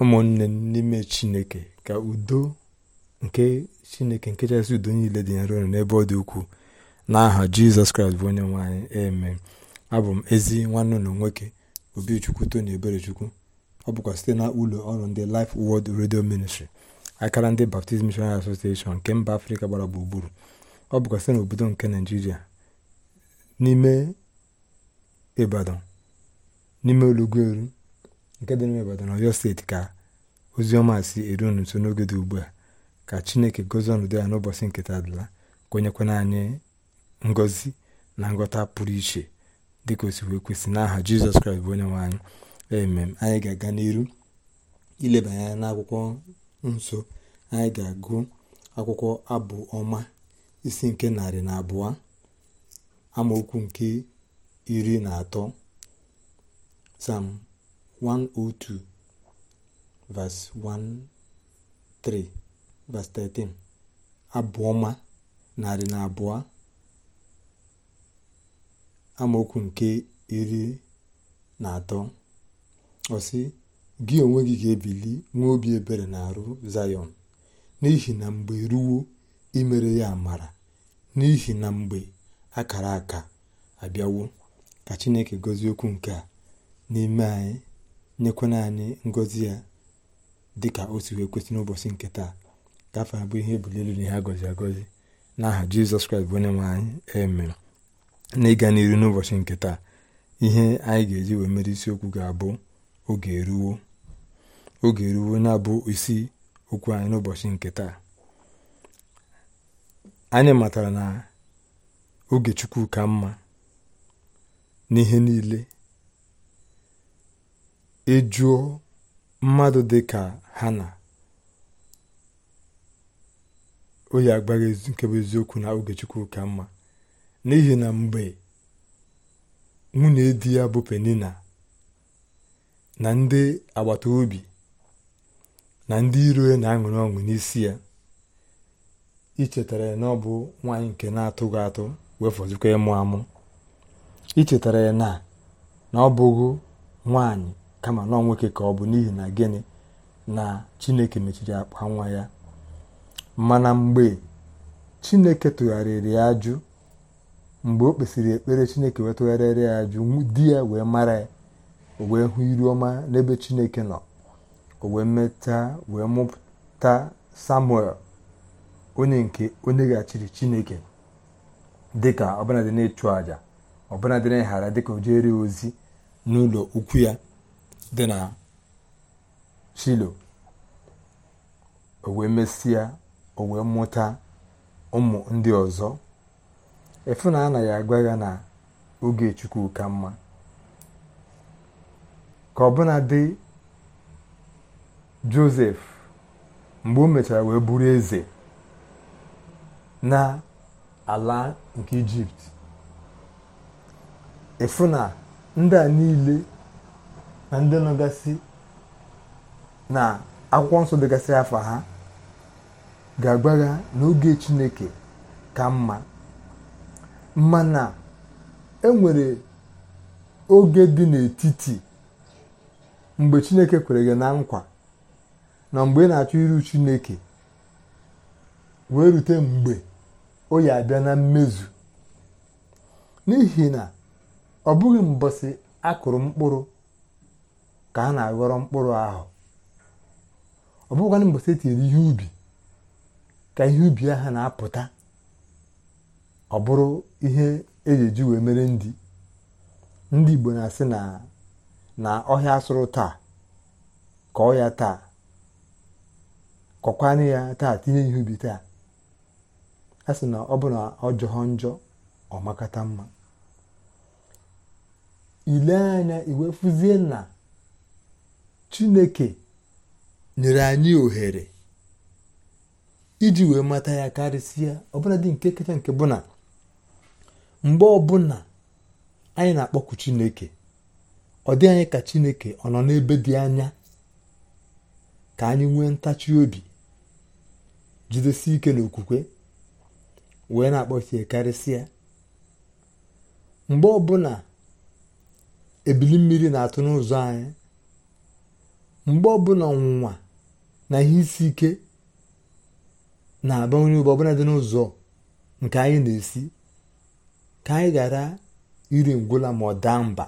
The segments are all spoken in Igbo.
ụmụnne n'ime chineke ka udo nke chineke nke chasị udo niile dị nro n'ebe ọ dị ukwuu n'aha jizọs kraịst bụ onye nwanyị eme abụ m ezi nwanne ụlọ nwoke obichukwu tony eberechukwu ọ bụkwa site na ụlọ ọrụ ndị Life world Radio Ministry akara ndị Baptist Missionary Association nke mba afrịka gbara gburugburu ọ bụkwa site n'obodo nke naijiria n'ime ibadan n'ime nke dị n'ime Ibadan Ọyọ steeti ka ozi ọma si eru unu nso n'oge dị ugbu a ka Chineke gozie ọnọdụ ya n'ụbọchị nketa dịla kwenyekwana anyị ngozi na ngọta pụrụ iche dịka o si kwesị n'aha Jizọs Kraịst bụ onye nwe anyị emem anyị ga-aga n'iru ileba anya n'akwụkwọ nsọ anyị ga-agụ akwụkwọ abụ ọma isi nke narị na abụọ amaokwu nke iri na atọ sam 102 verse 1 3 verse 13 abụọma narị na abụọ amaokwu nke iri na atọ ọsị gị onwe gị ga-ebili nwee obi ebere na arụ zayọn n'ihi na mgbe ruo imere ya amara n'ihi na mgbe akara aka abịawo ka chineke gozie okwu nke a n'ime anyị nyekwana anyị ngọzi ya dị ka o si wee kwesị n'ụbọchị nke taa ka afọ abụ ihe ebuli elu na ihe agọzi agọzi n'aha jizọs kraịst bụ onye nwe anyị emere na ịga n'iru n'ụbọchị nke taa ihe anyị ga-eji wee mere isiokwu ga-abụ oge eruwo oge eruwo na-abụ isi okwu anyị n'ụbọchị nke taa anyị matara na oge chukwu ka mma n'ihe niile ejuo mmadụ dị ka na o yi agbaghị nke bụ eziokwu na oge Chukwu ka mma n'ihi na mgbe nwunye di ya bụ Penina na ndị agbata obi na ndị iro ya na-aṅụrị ọṅụ n'isi ya ichetara ya na ọ bụ nwaanyị nke na-atụghị atụ wee fọzikwa ịmụ amụ ichetara ya na na ọ bụghị nwaanyị kama nọ nwoke ka ọ bụ n'ihi na gịnị na chineke mechiri akpa nwa ya mana mgbe chineke tụgharịrị ya ajụ mgbe o kpesịrị ekpere chineke wee tụgharịrị ya ajụ di ya wee mara ya o wee hụ iru ọma n'ebe chineke nọ o wee meta wee mụpụta samuel onye nke onye gachiri chineke dịka ọbụladị na-ịchụ ọbụladị na ịghara dịka o jere ozi n'ụlọ ukwu ya dị na uh, shilo o wee mesịa o wee mụta ụmụ ndị ọzọ efu na anaghị agwa ya na oge chukwu ka mma ka ọbụna dị josef mgbe o mechara wee bụrụ eze na ala nke ijipt efu na ndị a niile na ndị nọgasị na akwụkwọ nsọ dịgasị afọ ha ga-agbagha n'oge chineke ka mma mma mana enwere oge dị n'etiti mgbe chineke kwere gị na nkwa na mgbe ị na-achọ iru chineke wee rute mgbe o ya abịa na mmezu n'ihi na ọ bụghị mbọsị akụrụ mkpụrụ ka ha na-aghọrọ mkpụrụ ahụ ọ bụghịkwanụ mgbe etinyere ihe ubi ka ihe ubi ahụ na-apụta ọ bụrụ ihe eji eji wee mere ndị ndị Igbo na-asị na ọhịa asụrụ taa kọọ ya taa kọkwanụ ya taa tinye ihe ubi taa a sị na ọ bụ na ọ jọọ njọ ọ makata mma ile anya iwe fụzie na Chineke nyere anyị ohere iji wee mata ya karịsịa ọbụla dị nke kacha nke bụ na mgbe ọbụla anyị na-akpọku Chineke ọ dị anyị ka Chineke ọ nọ n'ebe dị anya ka anyị nwee ntachi obi jidesi ike n'okwukwe wee na-akpọchie karịsịa mgbe ọbụla ebili mmiri na-atụ n'ụzọ anyị mgbe ọbụla ọnwụnwa na ihe isi ike na-aba onye ugbo ọbụla dị n'ụzọ nke anyị na-esi ka anyị ghara iri ngwụla ma ọ daa mba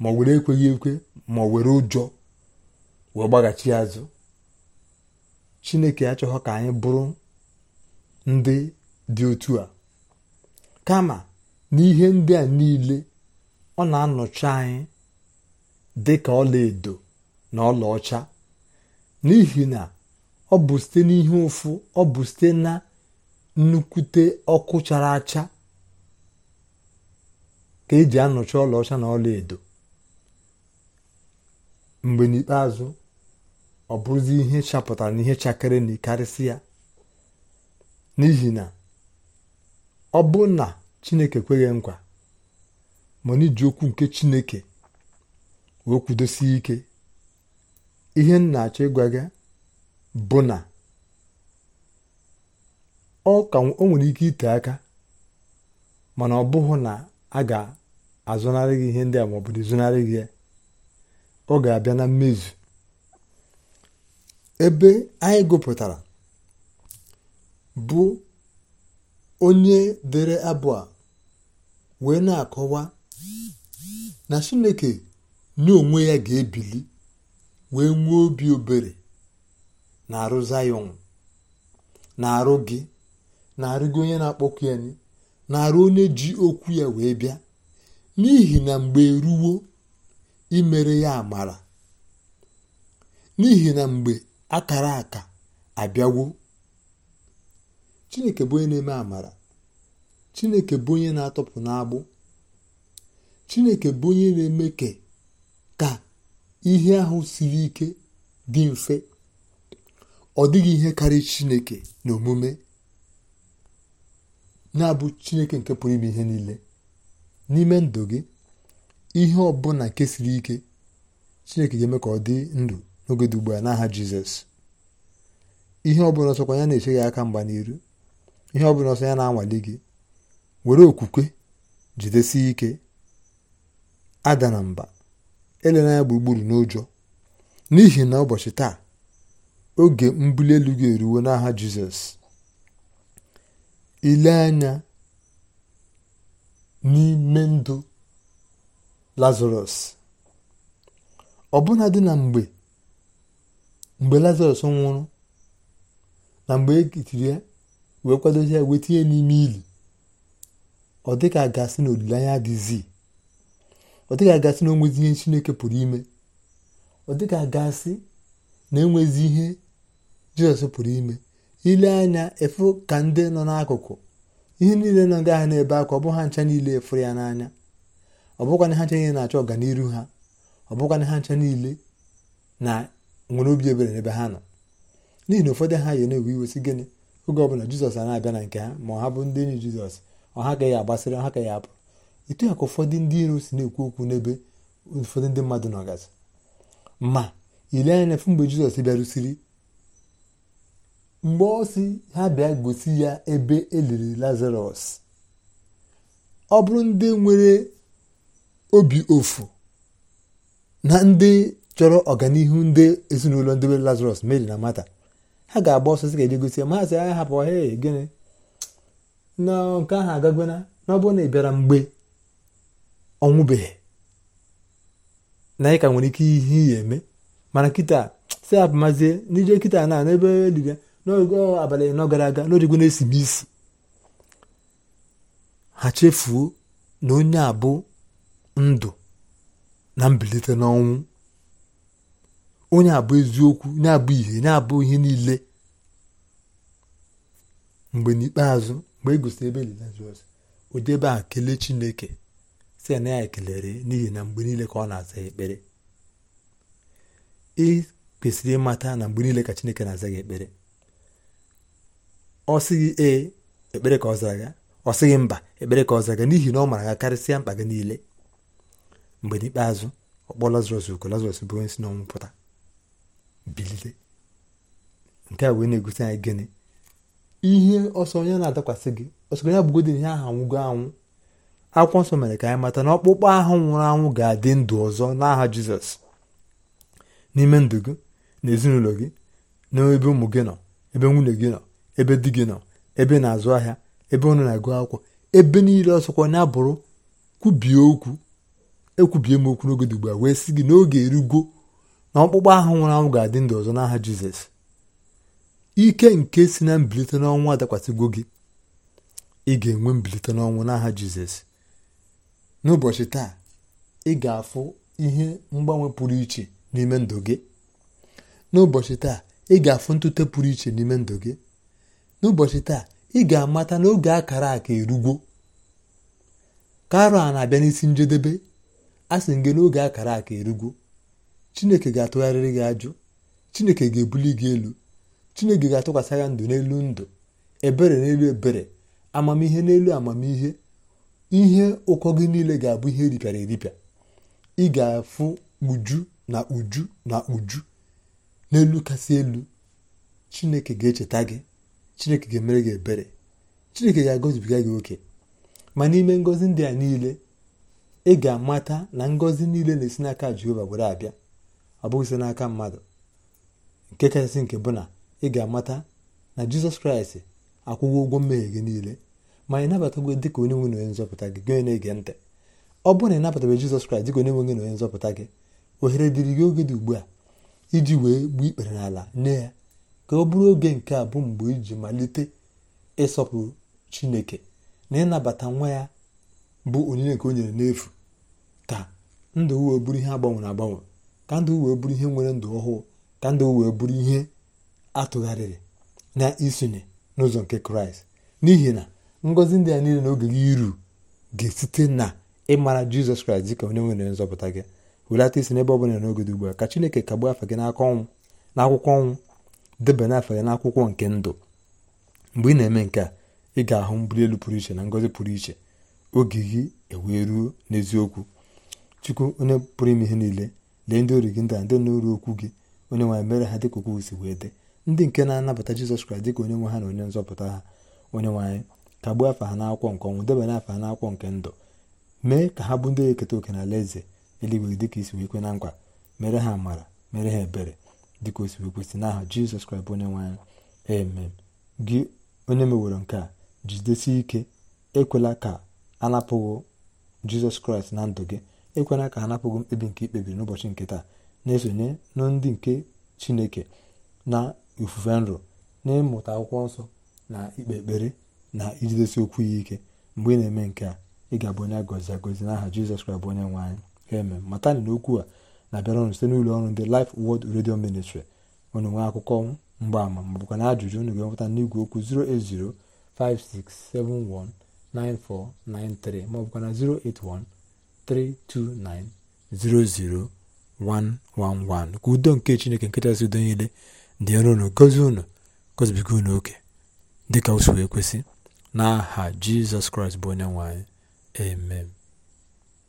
ma ọ were ekweghị ekwe ma ọ were ụjọ wee gbaghachi azụ chineke achọghọ ka anyị bụrụ ndị dị otu a kama n'ihe ndị a niile ọ na-anọchi anyị dị ka ọla na ọlaọcha n'ihi na ọ bụ site n'ihe ụfụ ọ bụ site na nnukwute ọkụ chara acha ka eji anọchi ọlaọcha na ọla edo mgbe n'ikpeazụ ọ bụrụzi ihe chapụtara na ihe chakere na karịsị ya n'ihi na ọ bụ na chineke kweghị nkwa mana iji okwu nke chineke wee kwudosie ike ihe m na-achọ ịgwa bụ na ọ ka o nwere ike ite aka mana ọ bụghị na a ga-azụnarị gị ihe ndị a ma ọ bụrụ zụnarị gị ya ọ ga-abịa na mmezu ebe anyị gụpụtara bụ onye dere abụ a wee na-akọwa na Chineke onwe ya ga-ebili wee nwee obi obere na-arụ zayọn na-arụ gị na-arụgo onye na-akpọkụ ya na-arụ onye ji okwu ya wee bịa n'ihi na mgbe eruwo imere ya amara n'ihi na mgbe akara aka abịawo chineke bụ onye na-eme amara chineke bụ onye na-atọpụ n'agbụ chineke bụ onye na-eme ka ihe ahụ siri ike dị mfe ọ dịghị ihe karịa chineke na omume na-abụ chineke nke pụrụ ime ihe niile n'ime ndụ gị ihe ọbụla nke siri ike chineke ga-eme ka ọ dị ndụ n'oge dị ugbu a n'aha jizọs ihe ọbụla ọsọkwa ya na-eche gị aka mgba n'iru ihe ọbụla ọsọ ya na-anwale gị were okwukwe jidesie ike ada na mba elena ya gburugburu n'ụjọ n'ihi na ụbọchị taa oge mbuli elu ga eruwo n'aha jizọs ile anya n'ime ndụ lazarọs ọbụna dị na mgbe mgbe lazarọs nwụrụ na mgbe e kitiri ya wee kwadozi ya wee tinye n'ime ili ọ dịka a ga-asị na olileanya ọ dịghị agasị na onwezi ihe chineke pụrụ ime ọ dịghị agasị na enwezi ihe jizọs pụrụ ime ile anya efu ka ndị nọ n'akụkụ ihe niile nọ ndị ahụ ebe akwa ọ bụ ha ncha niile efuru ya n'anya ọ bụkwana ha ncha niile na-achọ ọganiru ha ọ bụkwana ha ncha niile na nwere obi ebere n'ebe ha nọ n'ihi na ụfọdụ ha yi na-ewe iwe si gịnị oge ọbụla jizọs a na-abịa na nke ha ma ọ ha bụ ndị enyi jizọs ọ ha ya agbasịrị ọ ha ya apụ etu ya ka ụfọdụ ndị iro si na-ekwu okwu n'ebe ụfọdụ ndị mmadụ nọgasị ma ile anya efu mgbe jizọs bịarụsiri mgbe ọ si ha bịa gosi ya ebe eliri lazarus ọ bụrụ ndị nwere obi ofu na ndị chọrọ ọganihu ndị ezinụlọ ndị nwere lazarọs mary na mata ha ga-agba ọsọ ga-eje gosi ya ma ha sị ah, ha hapụ ọhịa gịnị na nke ahụ ọ n'ọbụrụ na ị bịara mgbe ọnwụbeghị na anyị ka nwere ike ihe ihe eme mana kịta si abụmazie n'ije kịta na n'ebe diga n'oge abalị nọ gara aga n'origwe na-esi m isi ha chefuo na onye a ndụ na mbilite n'ọnwụ onye abụ eziokwu onye abụ ihe onye abụ ihe niile mgbe n'ikpeazụ mgbe e gosiri ebe jizọs ụdị ebe a kelee chineke site na ya ekelere n'ihi na mgbe niile ka ọ na-aza ekpere ị kwesịrị ịmata na mgbe niile ka chineke na-aza gị ekpere ọ sịghị ee ekpere ka ọ zara ga ọ sịghị mba ekpere ka ọ zara ga n'ihi na ọ mara ga karịsịa mkpa gị niile mgbe n'ikpeazụ ọ kpọọ lazarọs uko lazarọs bụ onye si n'ọnwụ pụta bilite nke a wee na-egosi anyị gịnị ihe ọsọ onye na-adakwasị gị ọsọ onye abụgodị ihe ahụ anwụgo anwụ akwụkwọ nsọ mere ka anyị mata na ọkpụkpọ ahụ nwụrụ anwụ ga-adị ndụ ọzọ n'aha jizọs n'ime ndụ gị na ezinụlọ gị na ebe ụmụ gị nọ ebe nwunye gị nọ ebe di gị nọ ebe na-azụ ahịa ebe ụnụ na-agụ akwụkwọ ebe niile ọsọkwa na-abụrụ kwubie okwu ekwubie m okwu n'oge dị a wee sị gị n'oge erugo na ọkpụkpọ ahụ nwụrụ anwụ ga-adị ndụ ọzọ n'aha jizọs ike nke si na mbilite n'ọnwụ adakwasịgwo gị ị ga-enwe mbilite n'ọnwụ n'aha jizọs n'ụbọchị taa ị ga-afụ ihe mgbanwe pụrụ iche n'ime ndụ gị n'ụbọchị taa ị ga-afụ ntute pụrụ iche n'ime ndụ gị n'ụbọchị taa ị ga-amata n'oge akara aka erugwo karo a na-abịa n'isi njedebe a sị gị n'oge akara aka erugwo chineke ga-atụgharịrị gị ajụ chineke ga-ebuli gị elu chineke ga-atụkwasị ya ndụ n'elu ndụ ebere n'elu ebere amamihe n'elu amamihe ihe ụkọ gị niile ga-abụ ihe eripịara eripịa ị ga-afụ uju na uju na uju n'elu kasị elu chineke ga-echeta gị chineke ga-emere gị ebere chineke ga-agọzibiga gị oke ma n'ime ngọzi ndị a niile ị ga-amata na ngọzi niile na-esi n'aka jehova were abịa ọ bụghị n'aka mmadụ nke kachasị nke bụ na ị ga-amata na jizọs kraịst akwụghị ụgwọ mmehie gị niile ma ị nabatagwo dị ka onye nwe na onye nzọpụta gị gị na-ege ntị ọ bụrụ na ị nabatabe Jizọs Kraịst dị ka onye gị na onye nzọpụta gị ohere dịrị gị oge dị ugbu a iji wee gbuo ikpere n'ala nye ya ka ọ bụrụ oge nke a bụ mgbe iji malite ịsọpụrụ Chineke na ịnabata nwa ya bụ onyinye nke o nyere n'efu ka ndụ wee bụrụ ihe agbanwere agbanwe ka ndụ wee bụrụ ihe nwere ndụ ọhụụ ka ndụ wee bụrụ ihe atụgharịrị na isonye n'ụzọ nke kraịst n'ihi na ngozi ndị a niile na oge gị iru ga-esite na ịmara jizọs kraịst dịka onye nwere nzọpụta gị welata isi n'ebe ọ bụla n'oge dị ugbu a ka chineke kagbuo afa gị n'aka ọnwụ n'akwụkwọ ọnwụ debanye afa gị n'akwụkwọ nke ndụ mgbe ị na-eme nke a ị ga-ahụ mbuli elu pụrụ iche na ngozi pụrụ iche oge gị ewee ruo n'eziokwu chukwu onye pụrụ ime ihe niile lee ndị ori gị ndị a ndị noru okwu gị onye nwanyị mere ha dịka okwu si wee dị ndị nke na-anabata jizọs kraịst dịka onye nwe ha na onye nzọpụta ha onye nwe kagbuo afa ha n'akwụkwọ nke ọnwụ debanye afa ha n'akwụkwọ nke ndụ mee ka ha bụ ndị eketa oke na alaeze eluigwe dịka isi wee kwe na nkwa mere ha amara mere ha ebere dịka o si wee kwesị n'aha jizọs kraịst onye nwe anyị amen gị onye meworo nke a jidesi ike ekwela ka anapụghị jizọs kraịst na ndụ gị ekwela ka anapụghị mkpebi nke ikpebiri n'ụbọchị nke taa na-esonye na ndị nke chineke na ifufe nrọ n'ịmụta akwụkwọ nsọ na ikpe ekpere na ijidesi okwu ya ike mgbe ị na-eme nke a ị ga-abụ onye agọzi agọzi n'aha jizọs kraịst bụ onye nwe anyị amen matani na okwu a na-abịara ọnụ site n'ụlọ ọrụ ndị Life wọd redio Ministry unu nwee akụkọ ama ma bụkwa na ajụjụ unu ga-enweta n'igwe okwu 08056719493 ma bụkwa na 08132900111 ka udo nke Chineke nkechasị udo niile dị ụnụ unu gozie unu gozibiga unu oke dịka ka si wee kwesị n'aha jizọs kraịst bụ onye nwe anyị amen